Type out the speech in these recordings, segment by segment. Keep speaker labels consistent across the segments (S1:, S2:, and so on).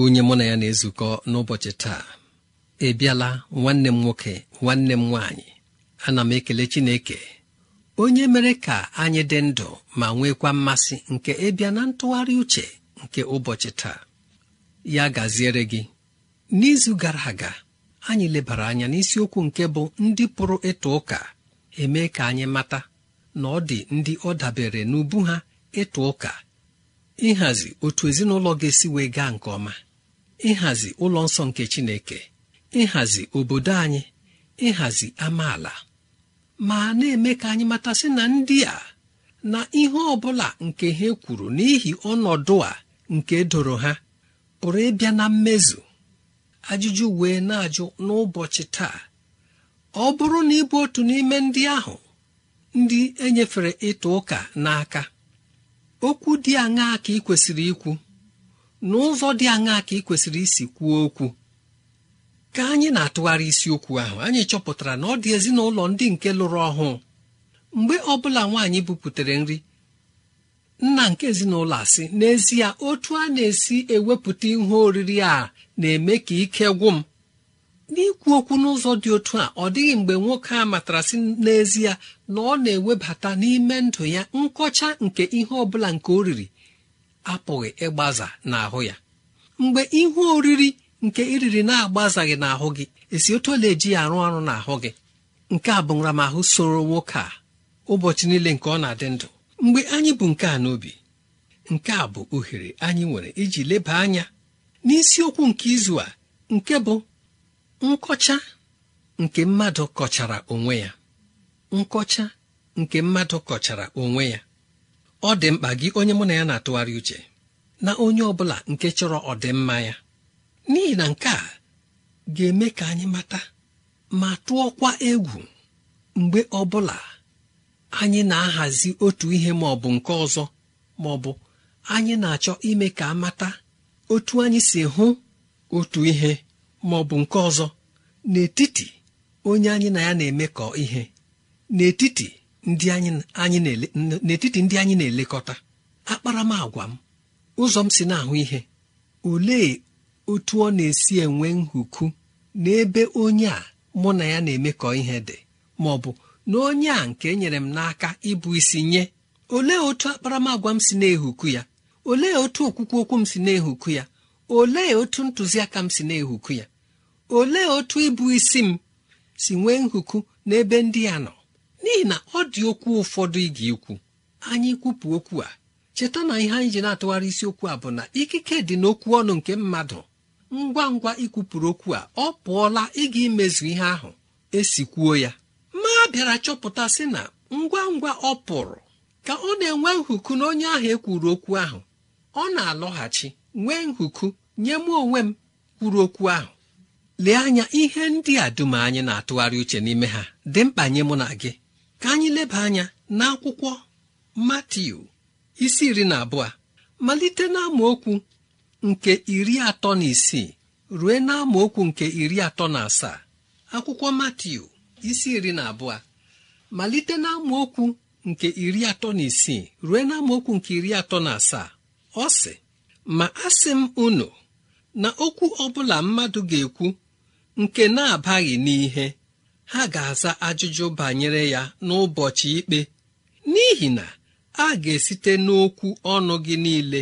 S1: onye mụ na ya na-ezukọ n'ụbọchị taa ị e bịala nwanne m nwoke nwanne m nwaanyị ana m ekele Chineke onye mere ka anyị dị ndụ ma nwekwa mmasị nke ịbịa e na ntụgharị uche nke ụbọchị taa ya gaziere gị n'izu gara aga anyị lebara anya n'isiokwu nke bụ ndị pụrụ ịtụ ụka eme ka anyị mata na ọ dị ndị ọ dabere n'ubu ha ịtụ ụka ịhazi otu ezinụlọ ga-esi wee gaa nke ọma ịhazi ụlọ nsọ nke Chineke ịhazi obodo anyị ịhazi amaala ma na-eme ka anyị matasị na ndị a na ihe ọ bụla nke ha kwuru n'ihi ọnọdụ a nke doro ha pụrụ ịbịa na mmezu ajụjụ wee na-ajụ n'ụbọchị taa ọ bụrụ na ịbụ otu n'ime ndị ahụ ndị enyefere ịta ụka n'aka okwu dị aṅaa ka ị kwesịrị ikwu n'ụzọ dị aṅaa ka ị kwesịrị isi kwuo okwu ka anyị na-atụgharị isiokwu ahụ anyị chọpụtara na ọ dị ezinụlọ ndị nke lụrụ ọhụụ mgbe ọ bụla nwaanyị buputere nri nna nke ezinụlọ asị n'ezie otu a na-esi ewepụta ihe oriri a na-eme ka ike gwụ m n'ikwu okwu n'ụzọ dị otu a ọ dịghị mgbe nwoke a matara sị n'ezie na ọ na-ewebata n'ime ndụ ya nkọcha nke ihe ọ bụla nke o riri apụghị ịgbaza n'ahụ ya mgbe ihe oriri nke iriri na-agbazaghị n'ahụ gị esi otu ole eji ya arụ ọrụ n'ahụ gị nke a bụ nramahụ soro nwoke a ụbọchị niile nke ọ na-adị ndụ mgbe anyị bụ nke a n'obi nke a bụ ohere anyị nwere iji leba anya n'isiokwu nke izu a nke bụ nkọcha nke mmadụ kọchara onwe ya nkọcha nke mmadụ kọchara onwe ya ọ dị mkpa gị onye mụ na ya na-atụgharị uche na onye ọ bụla nke chọrọ ọdịmma ya n'ihi na nke a ga-eme ka anyị mata ma tụọkwa egwu mgbe ọ bụla anyị na-ahazi otu ihe ma ọ bụ nke ọzọ ma ọ bụ anyị na-achọ ime ka amata otu anyị si hụ otu ihe ma ọ bụ nke ọzọ n'etiti onye anyị na ya na-emekọ ihe n'etiti ndị anyị n'etiti ndị anyị na-elekọta akparamagwa m ụzọ m si na-ahụ ihe olee otu ọ na-esi enwe nhuku n'ebe onye a mụ na ya na-emekọ ihe dị ma ọ bụ na onye a nke e nyere m n'aka ịbụ isi nye olee otu akparamagwa m si na-ehuku ya olee otu okwukwu okwu m si na-ehuku ya olee otu ntụziaka m si na-ehuku ya olee otu ịbụ isi m si nwee nhuku n'ebe ndị a nọ n'ihi na ọ dị okwu ụfọdụ ị ga-ekwu anyị kwupụ okwu a cheta na ihe anyị ji na-atụgharị isiokwu a bụ na ikike dị n'okwu ọnụ nke mmadụ ngwa ngwa ikwupụrụ okwu a ọ pụọla ịga imezu ihe ahụ esikwuo ya ma bịara chọpụta sị na ngwa ngwa ọ pụrụ ka ọ na-enwe nhuku na onye ahụ ekwuru okwu ahụ ọ na-alọghachi nwee nhuku nye m onwe m kwuru okwu ahụ lee anya ihe ndị a dum anyị na-atụgharị uche n'ime ha dị mkpa nye mụ na gị ka anyị leba anya n'akwụkwọ Matiu isi iri na abụọ malite n'amaokwu nke iri atọ na isii rue n'amaokwu nke iri atọ na asaa akwụkwọ Matiu isi iri na abụọ malite n'amaokwu nke iri atọ na isii rue n'amaokwu nke iri atọ na asaa ọ sị ma asị m unu na okwu ọbụla mmadụ ga-ekwu nke na-abaghị n'ihe ha ga-aza ajụjụ banyere ya n'ụbọchị ikpe n'ihi na a ga-esite n'okwu ọnụ gị niile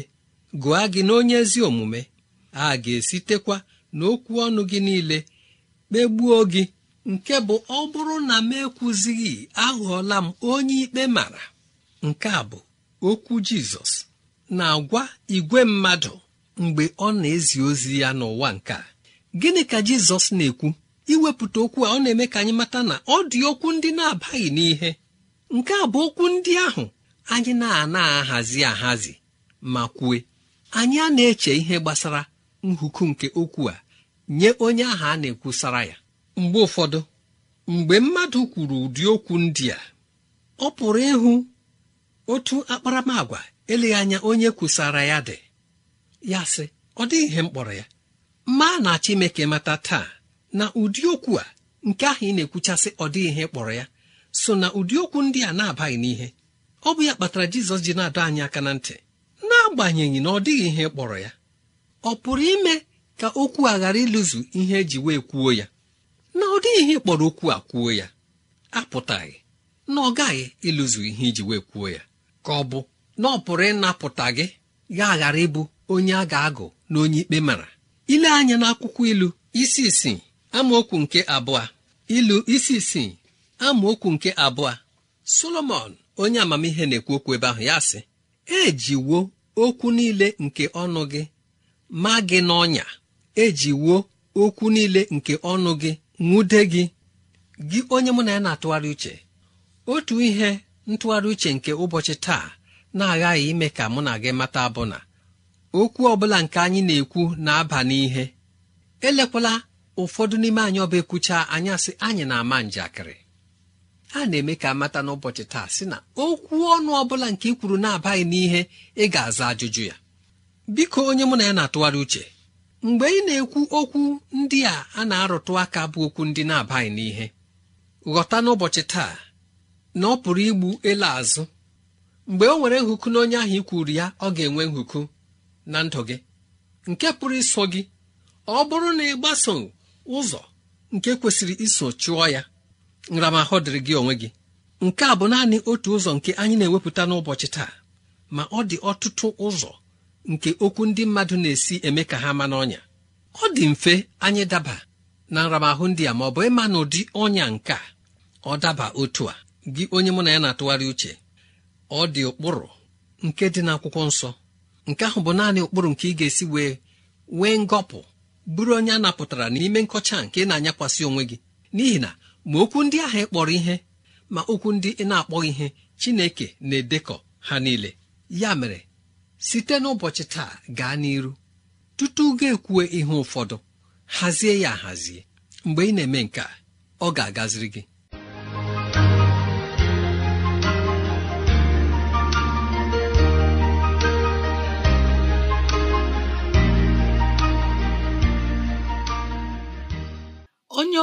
S1: gụa gị n'onye ezi omume a ga-esitekwa n'okwu ọnụ gị niile kpegbuo gị nke bụ ọ bụrụ na m ekwuzighị aghọọla m onye ikpe mara nke a bụ okwu jizọs na-agwa igwe mmadụ mgbe ọ na-ezi ozi ya n'ụwa nke a gịnị ka jizọs na-ekwu iwepụta okwu a ọ na-eme ka anyị mata na ọ dị okwu ndị na-abaghị n'ihe nke a bụ okwu ndị ahụ anyị na-ana ahazi ahazi ma kwue anyị a na-eche ihe gbasara nhuku nke okwu a nye onye ahụ a na-ekwusara ya mgbe ụfọdụ mgbe mmadụ kwuru ụdị okwu ndị a ọ pụrụ ịhụ otu akparamagwa eleghị anya onye kwusara ya dị ya sị ọ dịghị ihe mkpọrọ ya mma na Chineke mata taa na ụdị okwu a nke ahụ ị na-ekwuchasị ọ dịghị ihe kpọrọ ya so na ụdị okwu ndị a na-abaghị n'ihe ọ bụ ya kpatara jizọs ji na-adọ anyị aka na ntị n'agbanyeghị na ọ dịghị ihe kpọrọ ya ọ pụrụ ime ka okwu a ghara ịlụzu ihe eji wee kwuo ya na ọ dịghị ihe kpọrọ okwu a kwuo ya apụtaghị na ọ gaghị ịlụzu ihe iji wee kwuo ya ka ọ bụ na ọ pụrụ ịnapụta gị ya ghara ịbụ onye a ga-agụ na onye ikpe mara ile anya n'akwụkwọ ilu isi isii amaokwu nke abụọ ilu isi isii amaokwu nke abụọ solomon onye amamihe na-ekwu okwu ebe ahụ ya sị ejiwo okwu niile nke ọnụ gị ma gị n'ọnya ejiwo okwu niile nke ọnụ gị nwude gị gị onye mụ na ya na-atụgharị uche otu ihe ntụgharị uche nke ụbọchị taa na-aghaghị ime ka mụ na gị mata bụ na okwu ọbụla nke anyị na-ekwu na-aba n'ihe elekwala ụfọdụ n'ime anyị ọba ekwucha anyasị anyị na-ama njakịrị a na-eme ka amata n'ụbọchị taa sị na okwu ọnụ ọ bụla nke ị kwuru na-abaghị n'ihe ị ga-aza ajụjụ ya biko onye mụ na ya na-atụgharị uche mgbe ị na-ekwu okwu ndị a a na-arụtụ aka bụ okwu ndị na-abaghị n'ihe ghọta n'ụbọchị taa na ọ pụrụ igbu ele azụ mgbe o nwere nhụkụ na onye ahụ ikwuru ya ọ ga-enwe nhụkụ na ndụ gị nke pụrụ iso gị ọ bụrụ na ị gbaso ụzọ nke kwesịrị iso chụọ ya nramahụ dịrị gị onwe gị nke a bụ naanị otu ụzọ nke anyị na-ewepụta n'ụbọchị taa ma ọ dị ọtụtụ ụzọ nke okwu ndị mmadụ na-esi eme ka ha ma n'ọnya ọ dị mfe anyị daba na nramahụ ndị a ma ọ bụ ịma na ụdị ọnya nke a ọ daba otu a gị onye mụ na ya na-atụgharị uche ọ dị ụkpụrụ nke dị n'akwụkwọ nsọ nke ahụ bụ naanị ụkpụrụ nke ị ga-esi wee nwee ngọpụ bụrụ onye a napụtara n'ime nkọcha nke na-anyakwasị onwe gị n'ihi na ma okwu ndị ahụ ịkpọrọ ihe ma okwu ndị ị na-akpọghị ihe Chineke na-edekọ ha niile ya mere site n'ụbọchị taa gaa n'iru tutu ga-ekwue ihe ụfọdụ hazie ya ahazie mgbe ị na-eme nke ọ ga-agaziri gị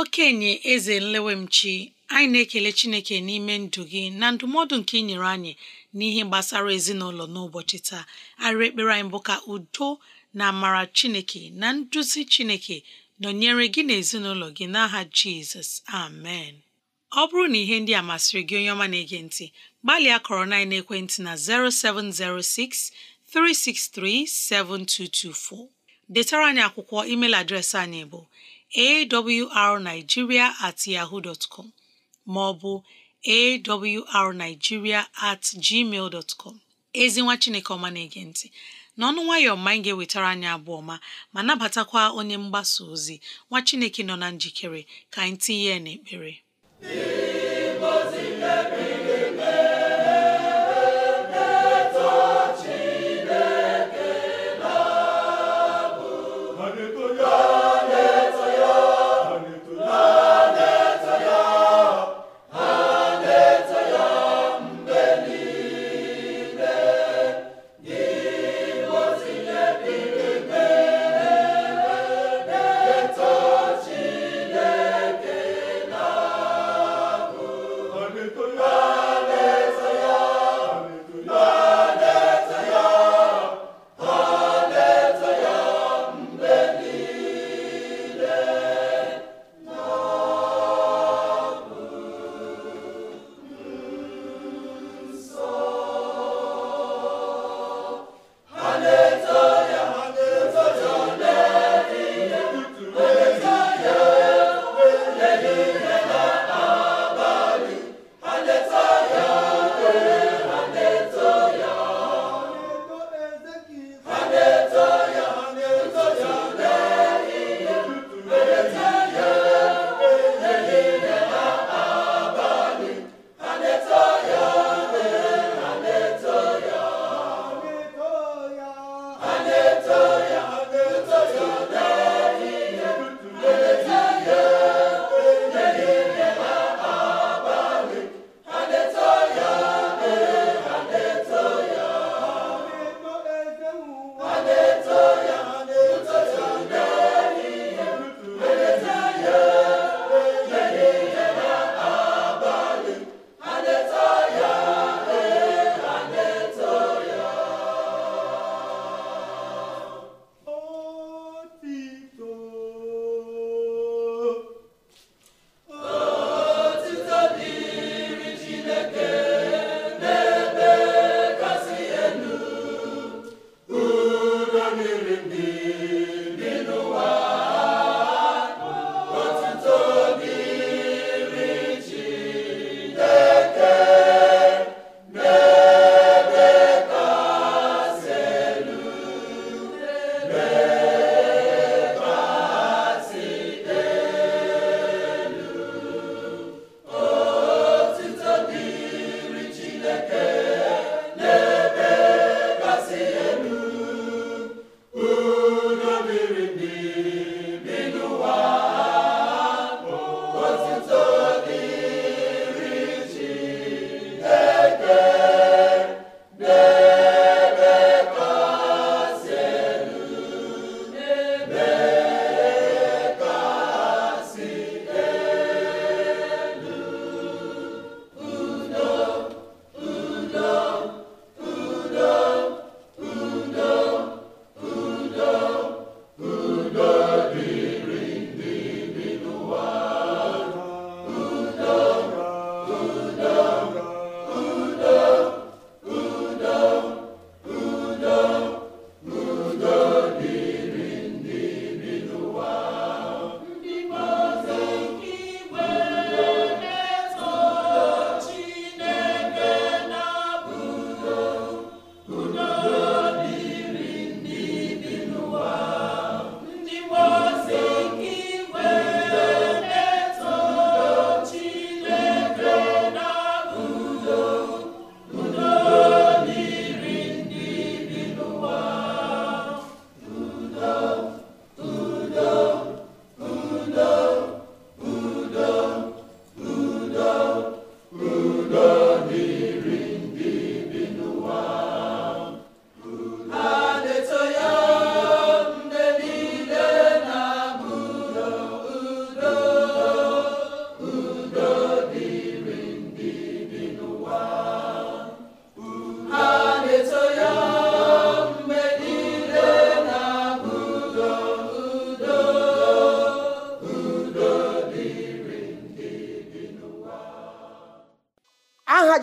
S2: okenye eze nlewemchi anyị na-ekele chineke n'ime ndụ gị na ndụmọdụ nke ị nyere anyị n'ihe gbasara ezinụlọ n'ụbọchị taa arịrị ekpere anyị bụ ka udo na amara chineke na nduzi chineke nọnyere gị na ezinụlọ gị n'aha jizọs amen ọ bụrụ na ihe ndị a masịrị gị onye ọma na-ege ntị gbalịa kọrọ na ekwentị na 0706 363 7224 detara anyị akwụkwọ email adreesị anyị bụ awrnigeria at yahoo dot com ma ọ bụ awrnigeria at gmail dot ezi nwa chineke ọma na-ege ntị n'ọnụ nwayọọ ma anyị ga-ewetara anyị abụọ ma ma nabatakwa onye mgbasa ozi nwa chineke nọ na njikere ka anyị tinye ya ekpere.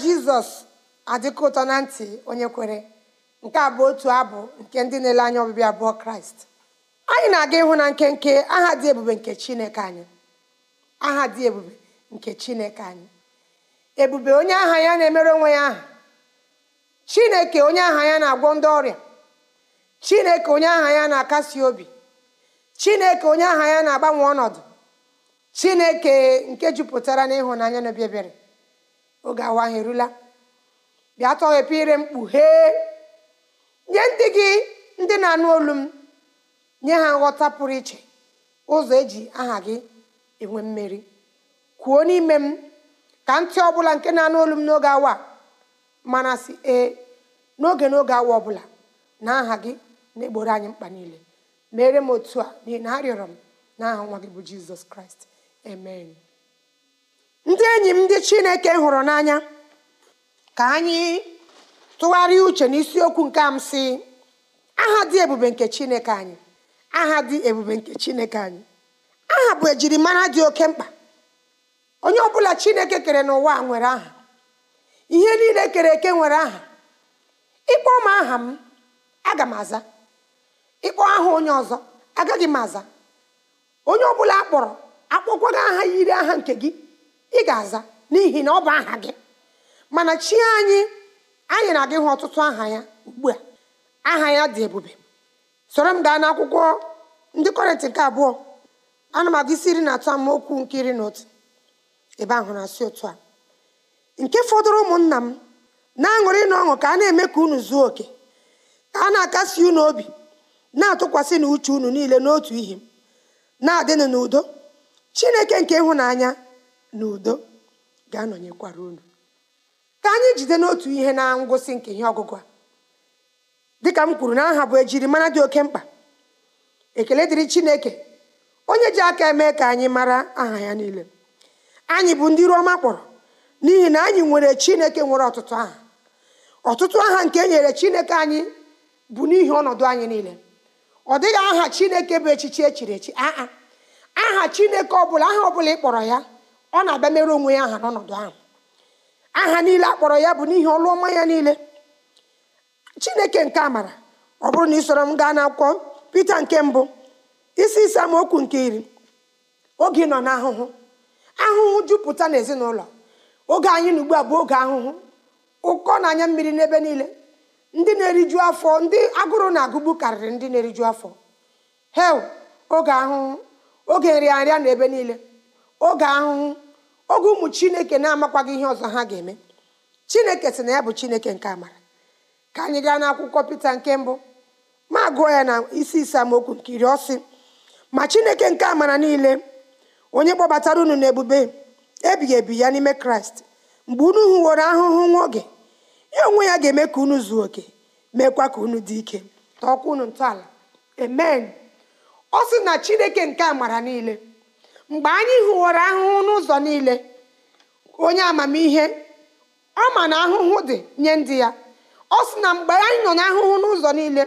S3: jizọs adịkọ ụtọ na ntị onye kwere nke a bụ otu abụ nke ndị na-ele anya ọbịbịa abụọ kraịst anyị na-aga ịhụ na nkenke aha dị ebube nke chineke anyị aha dị ebube nke chineke anyị ebube onye aha ya na-emere onwe ya aha chineke onye aha ya na-agwọ ndị ọrịa chineke onye aha ya na-akasi obi chineke onye aha ya na-agbanwe ọnọdụ chineke nke jupụtara n'ịhụnanya na obi ebere oge awa anyị erula bịa tọghepụ ire mkpu hee nye ndị gị ndị na-anụ olu m nye ha nghọta pụrụ iche ụzọ eji aha gị enwe mmeri kwuo n'ime m ka ntị ọbụla nke na-anụ olu m n'oge awa mana si ee n'oge n'oge awa ọbụla na aha gị na-egboro anyị mkpa niile mere m otu a n'ihi na arịọrọ m n'aha nwa gị bụ jizọs kraịst amen ndị enyi m ndị chineke hụrụ n'anya ka anyị tụgharịa uche n'isiokwu nke amsị si aha dị ebube nke chineke anyị aha dị ebube nke chineke anyị aha bụ ejirimara dị oke mkpa onye ọbụla chineke kere n'ụwa nwere aha ihe niile kere eke nwere aha ịkpọ m aha m aga m aza ịkpọ aha onye ọzọ agaghị m aza onye ọbụla akpọrọ akpọkwaga aha yiri aha nke gị ị ga-aza n'ihi na ọ bụ aha gị mana chi anyị anyị na-aga ịhụ ọtụtụ aha ya ugbu a aha ya dị ebube soro m gaa n'akwụkwọ ndị kọrịntị nke abụọ ana m aga isi iri na atọ amaokwu nke iri na otu ebe ahụ na-asị otu a nke fọdụrụ ụmụnna m na-aṅụrị na ọṅụ ka a na-eme ka unu zuo oke ka a na-akasi unu obi na-atụkwasị na uche unu niile n'otu ihe na-adịnụ n'udo chineke nke ịhụnanya na udo ga-anọnyekwara unu ka anyị jide n'otu ihe na ngwụsị nke ihe ọgụgụ a dịka m kwuru na aha bụ ejirimara dị oke mkpa ekele dịrị chineke onye ji aka eme ka anyị mara aha ya niile anyị bụ ndị Roma kpọrọ n'ihi na anyị nwere chineke nwere ọtụtụ aha ọtụtụ aha nke e nyere chineke anyị bụ n'ihi ọnọdụ anyị niile ọ dịghị aha chineke bụ echichi echiri echi aha aha chineke ọbụla aha ọbụla ị kpọrọ ya ọ na-abịa mere onwe ya aha n'ọnọdụ ahụ aha niile a kpọrọ ya bụ n'ihi ọlụ ọma ya niile chineke nke amara ọ bụrụ na ị m gaa n'akwụkwọ pita nke mbụ isi ise okwu nke iri oge ị nọ n'ahụhụ ahụhụ jupụta n'ezinụlọ oge anyị na ugbu a bụ oge ahụhụ ụkọ na anya mmiri n'ebe niile ndị na-eriju afọ ndị agụrụ na agụgbu karịrị ndị na-eriju afọ hel oge ahụhụ oge nrịanrịa n'ebe niile oge ahụhụ oge ụmụ chineke na-amakwaghị ihe ọzọ ha ga-eme chineke sị na ya bụ chineke nke amara ka anyị gaa n'akwụkwọ pita nke mbụ ma gụọ ya na isi isamokwu nke iri ọsị ma chineke nke amara niile onye kpọbatara unu n'ebube ebighị ebi ya n'ime kraịst mgbe unu hụworo ahụhụ nwa oge ya onwe ya ga-eme ka unu zuo oke meekwa ka unu dị ike tọọkwa unu ntọala amen ọ sị na chineke nke amara niile mgbe anyị hụwara ahụhụ n'ụzọ niile onye amamihe ọ ma na ahụhụ dị nye ndị ya ọ sị na mgbe anyị nọ ahụhụ n'ụzọ niile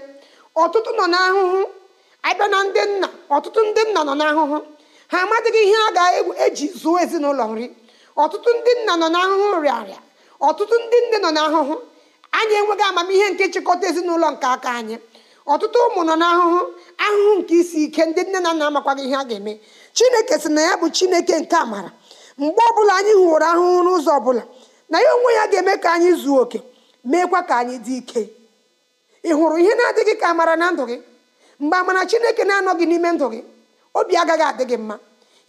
S3: ọtụtụ nọ ahụhụ abịa na ndị nna ọtụtụ ndị nna nọ n'ahụhụ ha amadịghị ihe a ga-eji e zuo ezinụlọ nri ọtụtụ ndị nna nọ n'ahụhụ rịarịa ọtụtụ ndị nne nọ n'ahụhụ anyị enweghị amamihe nke nchịkọta ezinụlọ nke aka anyị ọtụtụ ụmụ nọ n'ahụhụ ahụhụ nke isi ike ndị nne na nna amakwaghị ihe a ga-eme chineke sị na ya bụ chineke nke amara mgbe ọbụla anyị hụworo ahụhụ n'ụzọ ọbụla na ya onwe ya ga-eme ka anyị zuo oke meekwa ka anyị dị ike ị hụrụ ihe na-adịghị ka amara na ndụ gị mgbe amara chineke na-anọghị n'ime ndụ gị obi agaghị adị gị mma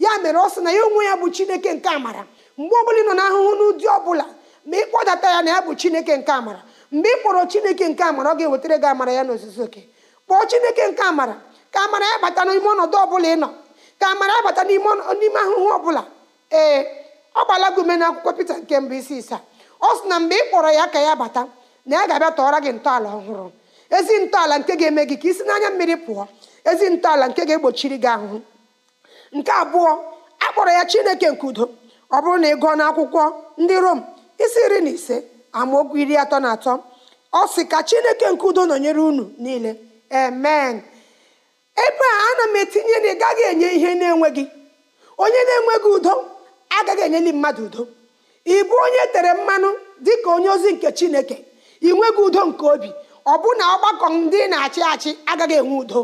S3: ya mere ọ sị na ya onwe ya bụ chineke nke amara mgbe ọbụla ị nọ n'ahụhụ n'ụdị ọbụla ma ị kpọdata ya na ya bụ chineke nke amara mgbe ị kpọrọ chineke nke amara ọ ga-ewetara gị amara ya n'ozuzu oke kpọọ chineke nke amara ka amara ya bata n'ime ọnọdụ ọbụla ị nọ ka amara abata n'ime ahụhụ ọbụla ee ọ gbala gị ume akwụkwọ Pita nke mbụ isi isaa ọ sị na mgbe ị kpọrọ ya ka ya bata na ya ga-abịa tọọrọ gị ntọala ọhụrụ ezi ntọala nke ga-eme gị ka isi n'anya mmiri pụọ ezi ntọala nke ga-egbochiri gị ahụhụ nke abụọ a kpọrọ ya Chineke nke udo ọ bụrụ na ị gụọ n'akwụkwọ ndị Rom isi iri na ise amaokwu iri atọ na atọ ọ sị ka Chineke nke udo nọnyere unu niile amen ebe a ana m etinye na ị gaghị enye ihe na-enweghị onye na-enweghị udo agaghị enyeli mmadụ udo ịbụ onye e tere mmanụ dị ka onye ozi nke chineke ị nweghị udo nke obi ọ bụ na ọgbakọ ndị na-achị achị agaghị enwe udo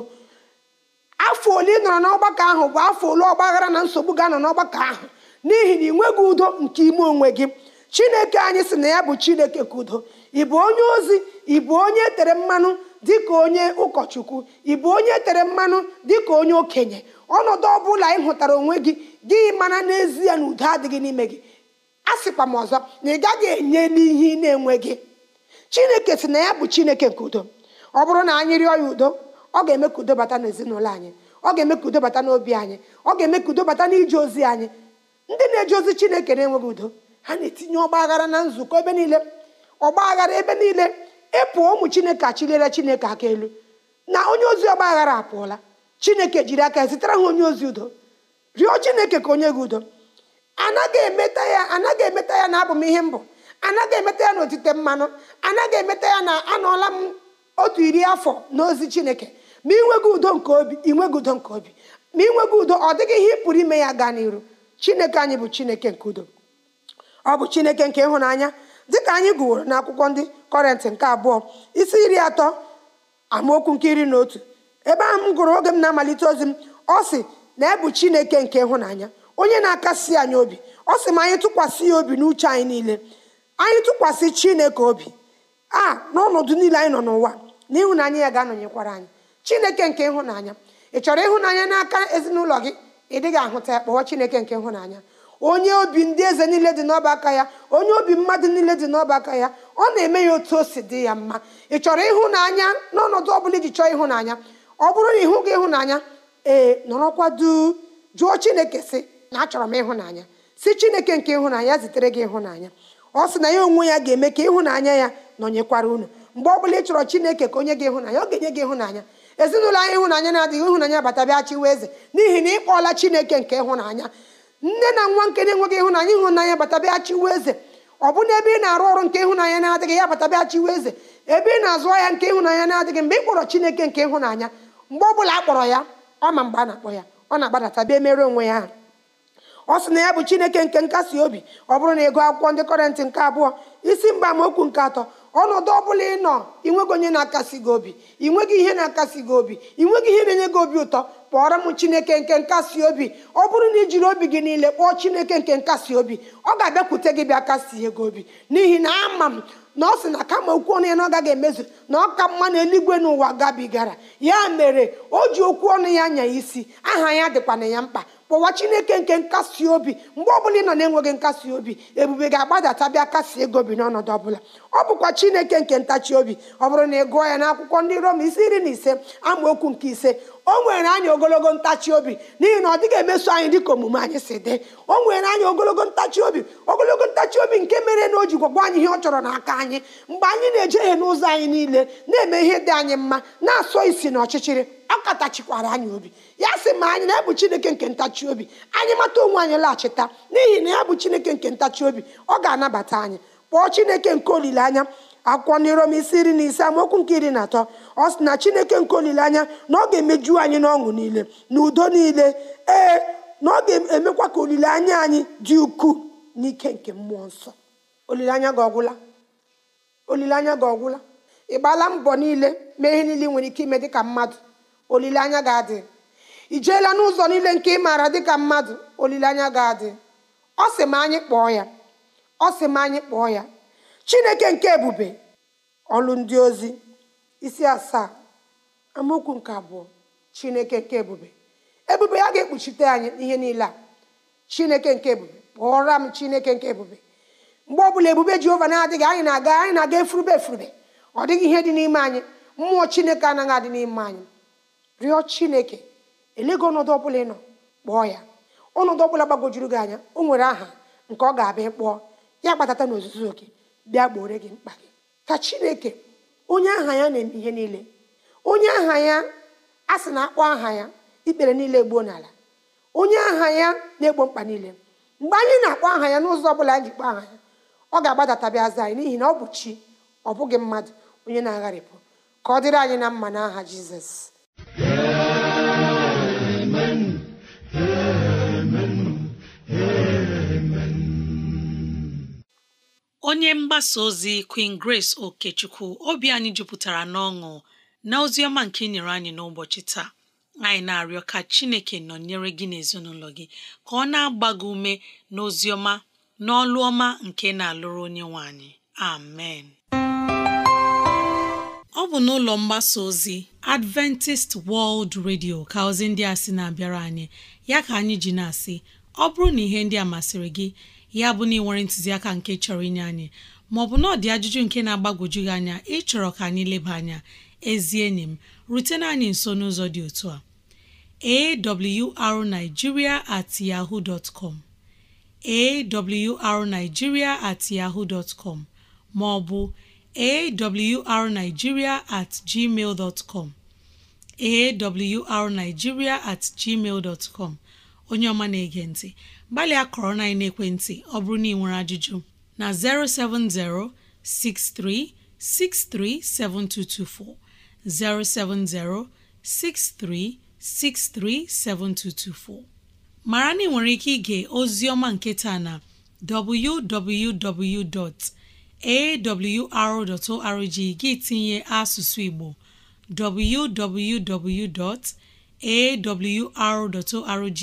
S3: afọ ole ị nọrọ n'ọgbakọ ahụ bụ afọ ole ọgbaghara na nsogbu ga-anọ n'ọgbakọ ahụ n'ihi na ị nweghị udo nke ime onwe gị chineke anyị sị na ya bụ chineke ka udo ị bụ onye ozi ị bụ onye e tere mmanụ dịka onye ụkọchukwu ị bụ onye tere mmanụ dịka onye okenye ọnọdụ ọ bụla ị hụtara onwe gị gị mana n'ezie na udo adịghị n'ime gị a sịkwa m ọzọ na ị gaghị enye n'ihe ị na gị. chineke si na ya bụ chineke nke udo ọ bụrụ na anyị rịọ ya udo ọ ga-eme ka udo bata n'ezinụlọ anyị ọ ga-eme ka udo bata n'obi anyị ọ ga-eme ka udo bata n'ije ozi anyị ndị na-eje ozi chineke na-enweghị udo ha na-etinye ọgba aghara na nzukọ ebe niile ọgba aghara ebe niile ịpụ ụmụ chineke achilere chineke aka elu na onye ozi ọgba aghara apụọla chineke jiri aka zitere ha onye ozi udo rịọ chineke ka onye gị udo anaghị emeta ya anaghị emeta ya na abụ m ihe mbụ anaghị emeta ya na otite mmanụ anaghị emeta ya na anọọla m otu iri afọ n'ozi chineke ma inweghị udo nke obi inweghị udo nke obi ma inweghị udo ọ dịghị ihe ị pụrụ ime ya gaa n'iru chineke anyị bụ chineke nke udo ọ bụ chineke nke ịhụnanya dịka anyị gụworo n'akwụkwọ ndị kọrent nke abụọ isi iri atọ amaokwu nke iri na otu ebe ahụ m gụrụ oge m na-amalite ozi m ọ sị na ebu chineke nke ịhụnanya onye na-akasi anyị obi ọ sị ma anyị tụkwasị ya obi n'uche anyị niile anyị tụkwasị chineke obi a n'ọnọdụ niile anyị nọ n'ụwa na ịhụnanya ya ga-anọnyekwara anyị chineke nke ịhụnanya ị chọrọ ịhụnanya n'aka ezinụlọ gị ị dịghị ahụta ya kpọọ chineke nke ịhụnanya onye obi ndị eze niile dị n'ọba aka ya onye obi mmadụ niile dị n'ọba aka ya ọ na-eme ya otu o si dị ya mma ị chọrọ ịhụnanya n'ọnọdụ ọbụla iji chọọ ịhụnanya ọ bụrụ na ịhụ gị ịhụnanya ee nọrọkwa duu jụọ chineke si na achọrọ m ịhụnanya si chineke nke ịhụnanya zitere gị ịhụnanya ọ sị na ya onwe ya ga-eme ka ịhụnanya ya nọnyekwara unu mgbe ọbụla ị chọrọ chineke ka onye gị ịhụnanya ọ ga-enye gị ịhụnanya ezinụlọ anyị ịhụnanya na-adịghị ịhụnanya batabịa chiwa eze n'ihi na ị kpọọla chineke nke ịhụnanya nne na nwa nke na-enweghị ịhụnanya ịhụnanya batabịa chiwu eze ọ bụ na ebe ị na-arụ ọrụ nke ịhụnanya na-adịghị ya batabịa chiwu eze ebe ị na-azụ ahịa nke ịhụnanya na-adịghị mgbe ị kpọrọ chineke nke ịhụnanya mgbe ọ bụla akpọrọ ya ọ ma mgbe a na-akpọ ya ọ na-agbadata bịa mere onwe ya ọ sị na ya bụ chineke nke nkasi obi ọ bụrụ na ị akwụkwọ ndị kọrentị nke abụọ isi mgba amaokwu nke atọ ọnọdụ ọbụla ị nọ ịnweghị onye na-akasi gị obi ịnweghị ihe na-akasi gị obi ịnweghị ihe na-enye gị obi ụtọ kpọọrọ m chineke nke nkasi obi ọ bụrụ na ị jiri obi gị niile kpọọ chineke nke nkasi obi ọ ga-abịakwute gị bịa kasie gị obi n'ihi na ama m na ọ sị na kama okwu ọnụ ya na ọ gaghị emezu na ọka mma na eluigwe n'ụwa gabigara ya mere o ji okwu ọnụ ya nya isi aha ya dịkwana ya mkpa kpọwa chineke nke nkasi obi mgbe ọbụla ị nọ na-enweghị nkasi obi ebube ga-agbadata bịa kasi ego bi n'ọnọdụ ọbụla ọ bụkwa chineke nke ntachi obi ọ bụrụ na ị gụọ ya n'akwụkwọ ndị rom isi iri na ise okwu nke ise o nwere anyị ogologo ntachi obi n'ihi na ọ dịghị emeso anyị dịka omume anyị si dị o nwere anyị ogologo ntachi obi ogologo ntachi obi nke mere na o ji gwagwa anyị ihe ọ chọrọ n'aka anyị mgbe anyị na-ejeghe n'ụzọ anyị niile na-eme ihe dị anyị mma na-asọ isi na ọchịchịrị ọ katachikwara anyị obi ya sị ma anyị na-ebu chineke nke ntachi obi anyị mata onwe anyị laghachita n'ihi na ya bụ chineke nke ntachi obi ọ ga-anabata anyị kpọọ chineke nke olileanya akwụkwọ n'irom isi iri na ise amaokwu nke iri na atọ ọ sị na chineke nke olileanya na ọ ga-emeju anyị n'ọṅụ niile na udo niile ee na ọ ga-emekwa ka olileanya anyị dị ukwuu n'ike nke mmụọ nsọ olileanya gị ọgwụla olileanya ọgwụla ị gbaala mbọ niile mee ihe niile nwere ike ime dị ka mmadụ olileanya ga-adị i jeela n'ụzọ niile nke ị maara dịka mmadụ olileanya ga-adị ọ sị m anyị kpọọ ya ọ sị m anyị kpọọ ya chineke nke ebube ọlụ ndị ozi isi asaa amaokwu nke abụọ chineke nke ebube ebube ya ga-ekpuchite anyị ihe niile a chineke nke ebube kpọọra m chineke nke ebube mgbe ọbụla ebube jehova na-adịghị anyị na-aga anyị na-aga efurube efurube ọ dịghị ihe dị n'ime anyị mmụọ chineke anaghị adị n'ime anyị rịọ chineke elego ọnọdụ ọbụla ị nọ kpọọ ya ọnọdụ ọbụla gbagojuru gị anya o nwere aha nke ọ ga-abịa kpọọ ya kpatata na ozuzu oke bịa gboore gị mkpa gị ka chineke onye aha ya na-eme ihe niile onye aha ya a sị na akpọ aha ya ikpere niile gboo n'ala onye aha ya na-egbo mkpa niile mgbe anyị na-akpọ aha ya n'ụzọ ọ bụla anyị ji kpọọ aha ya ọ ga-agbadatabịa aza anyị n'ihi na ọ bụ chi ọ bụghị mmadụ onye na-agharịpụ ka ọ dịrị anyị na mma n'aha jizọs
S2: onye mgbasa ozi Queen Grace Okechukwu obi anyị jupụtara n'ọṅụ na ozi ọma nke nyere anyị n'ụbọchị taa anyị na-arịọ ka Chineke nọnyere gị n'ezinụlọ gị ka ọ na-agba gị ume na ọma n'ọlụ ọma nke na-alụrụ onye nwe anyị amen ọ bụ n'ụlọ mgbasa ozi Adventist World Radio ka ozi ndị a sị na-abịara anyị ya ka anyị ji na-asị ọ bụrụ na ihe ndị a masịrị gị ya bụ na ị nwere ntụziaka nke chọrọ inye anyị maọbụ bụ ọ dị ajụjụ nke na-agbagwoju gị anya ịchọrọ ka anyị leba anya ezi enyi m rutena anyị nso n'ụzọ dị otu a awrnigeria at yahoo dot com at yahoo dot com maọbụ awrnigeria at gmail dot com at gmail dot onye ọma na-ege ntị gbalịa kọrọ na ekwentị ọ bụrụ na ị nwere ajụjụ na 07063637224 07063637224 mara na ị nwere ike ige ozi ọma nke na www.awr.org gị tinye asụsụ Igbo www.awr.org